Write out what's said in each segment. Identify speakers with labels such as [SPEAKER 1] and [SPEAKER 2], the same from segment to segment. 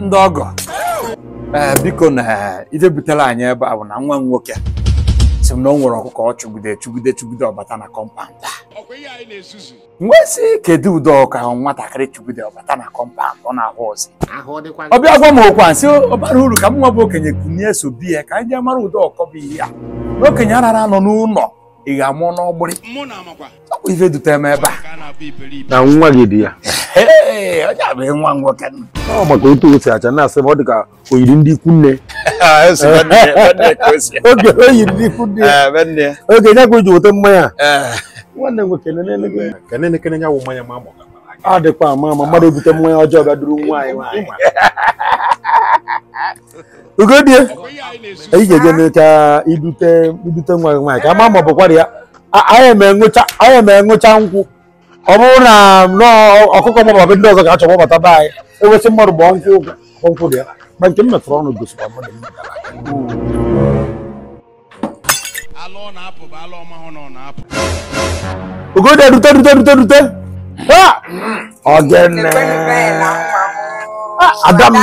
[SPEAKER 1] ndị ọgọ ee eh, biko na ije anyị ebe a bụ na nwa m nwoke si m na o nwere ọkụkọ ọ chụgide chụgide chụgide ọbata na kọmpand nwesị kedu ụdị ọka ahụ nwatakịrị chụgide ọbata na kọmpand ọ na-ahụ ọzọ ọbịa gwa m a nsị ọbara uru ka m nwa bụ okenye kunye so ya ka anyị jee mara ụdị ọkọ bụ ihe a na okenye arara anọ n'ụlọ ị ga-amụ n'ọgbụrị ọ bụ ife dutere m ebe a na nwa gị dị ya onye nwa nwoke ọ maka otu o acha na-asị ọ dị oyiri ndị ikwu nne oge ikwu oge nya ka o ji weta mmanya nwanne m ama mmadụ ebute mmanya ọjọọ bịa duru nwaanyị nwaanyị ugodie anyị ga-eje nwa nwaanyị ka ama ya anyị ma nkwụ ọ bụrụ hmm. na ọkụkọ ma ọbụ ndị ọzọ ga-achọ gbabata be anyị enwesị mmadụ bụ ọnkwụ ọnkwụ dị ya ma nke m metụrụ ọnụ gosiri mmadụ Ugoda rute rute rute rute ọgene hmm. ah, adam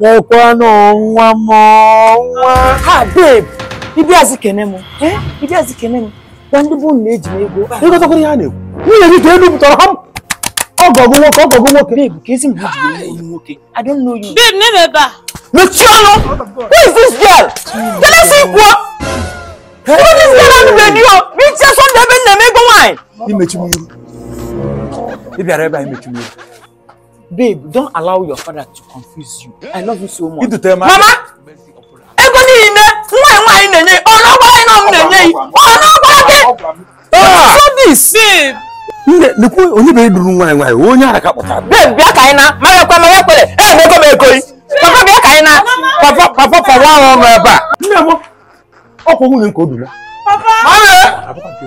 [SPEAKER 1] mekwanụ nwa m nwa ha babe ibi azị kene m eh? ibi azị kene m gwa ndị bụ na eji m ego ịgotakwara ihe a na-ekwu Ni yeri te lu toro ham. Ogogo wo ogogo wo ke. Babe, kesi mu ogogo wo I don't know you. Babe, never ba. Luciano, who is this girl? Can I see what? Who is this girl on the radio? Me che son de ben na me go wine. Imechi mu. Ibi ara ba imechi mu. Babe, don't allow your father to confuse you. I love you so much. Mama, nne nekwu onyebeghị duru nwa nwaanyị nwa onye ara ka kpọtara bem bịa ka anyị na mara ekwe mara ekwere ee meko m ekoyi papa bịa ka anyị na papa papa papa ahụ nọ ebe a nne m ọkwa nwunye nke o dula papa